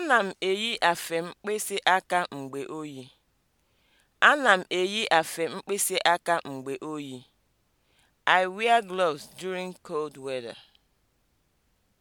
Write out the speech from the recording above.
Ana m eyi afe mkpịsị aka mgbe oyi. Ana m eyi afe mkpịsị aka mgbe oyi. I wear gloves during cold weather.